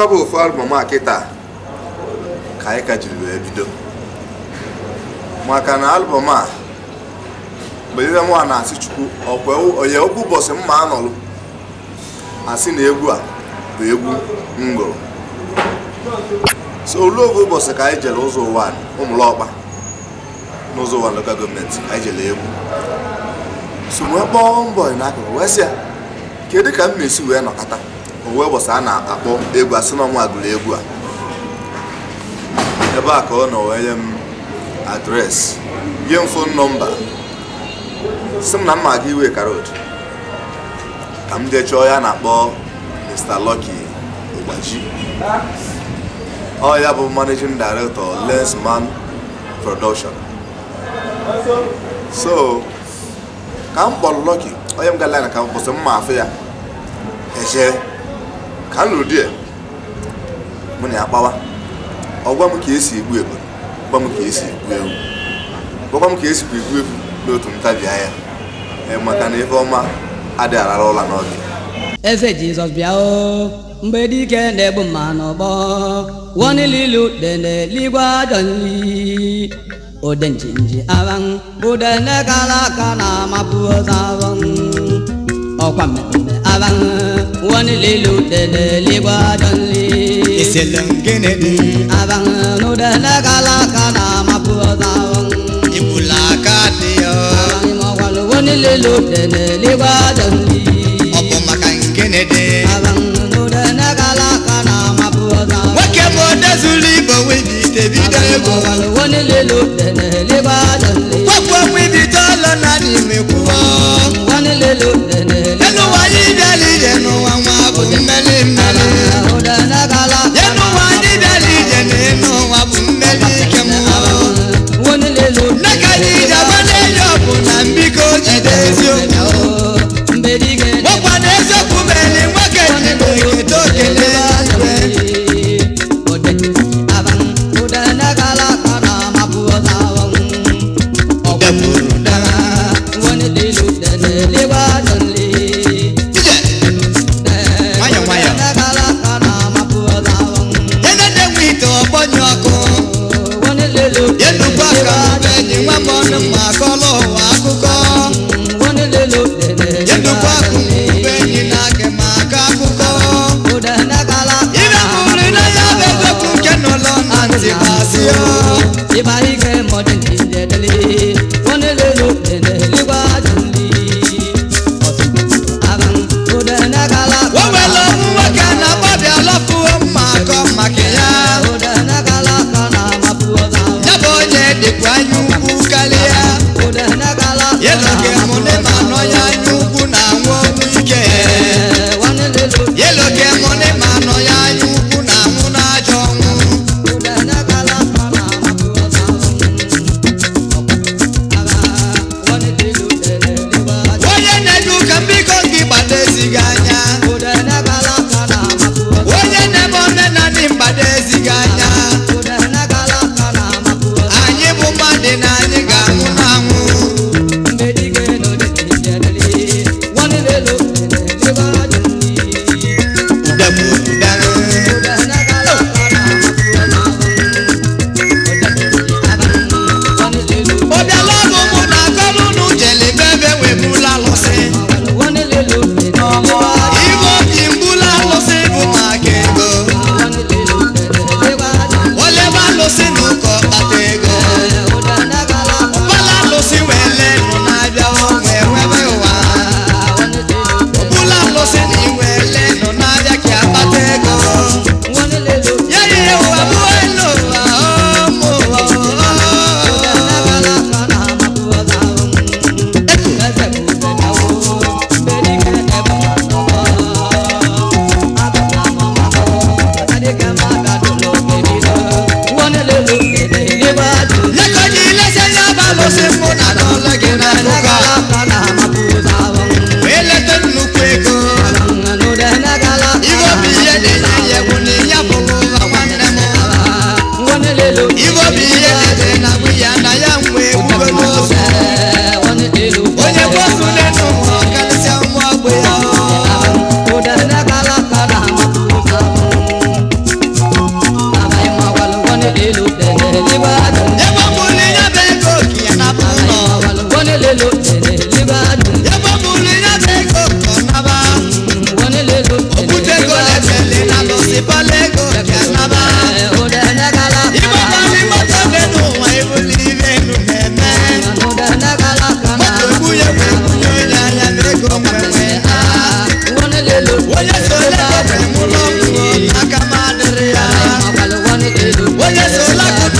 akọba ofu albọm a kịta ka anyị ka jiri wee bido maka na albọm a mgbe nwa na-asị chukwu onye okwu ụbọchị mma anọlụ asị na egwu a bụ egwu m so olu oge ụbọchị ka anyị jere ụzọ ụwa ụmụlọọkpa n'ụzọ ụwa lokal gọọmenti anyị jere egwu so wee kpọọ mbọ n'akụkụ wee sị ya kedu ka m na-esi wee nọkọta owe ụbọchị a na-akpọ egwu asị na ọnwa gụrụ egwu a ebe a ka ọ nọ wee nye m adreesị nye m fon nọmba si m na m aga iwe karod ka m jee ya na-akpọ Mr. Lucky Ogbaji ọ ya bụ managing director Lensman Production so ka m kpọrọ Lucky onye m ga-ala na ka m kwụsị mma afọ ya eje ka m lụrụ di ya mụ na akpawa kpawa ọ gwa m ka esi egbu egbu gwa m ka esi egbu ewu gwakwa m ka esi egbu egwu n'otu ntabi anya maka na ife ọma adịghị arara ụla n'oge efe jizọs bịa o mgbe dike na-egbu mma n'ọgbọ wọnililu deneligwe ajọ nri odenjinji aran budene kala aka na-amapụ ụzọ aran ọkwa mmemme aran wani lilo dede liba jɔnli. ìṣẹ̀lẹ̀ nkene di. abanu dene kala kana ma kuro sanwó. ibùlà ká di yọ. abanu mɔkɔlu wani lilo dede liba jɔnli. Jésù lákòókò.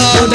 song.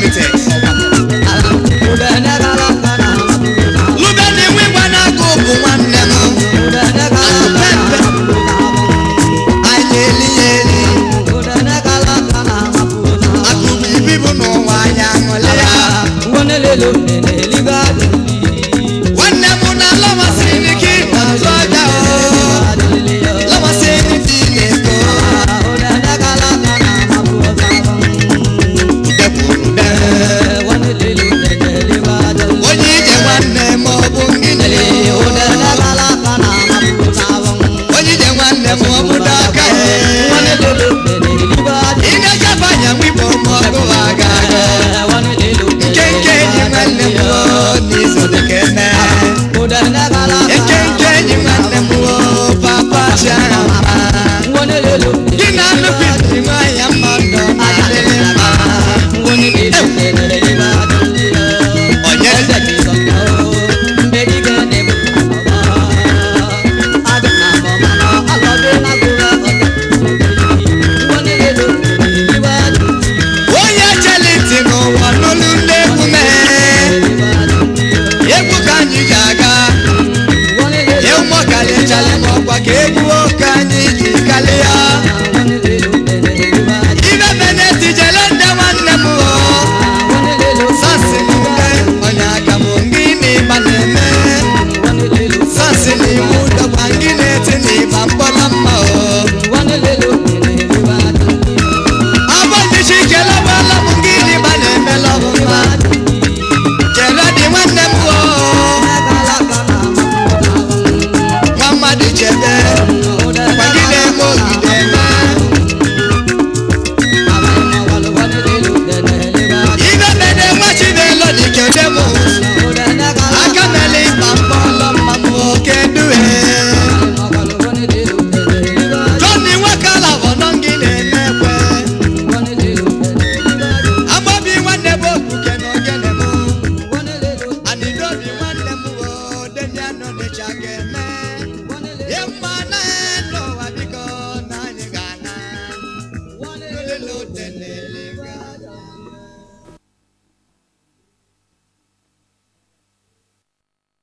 limited.